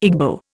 Igbo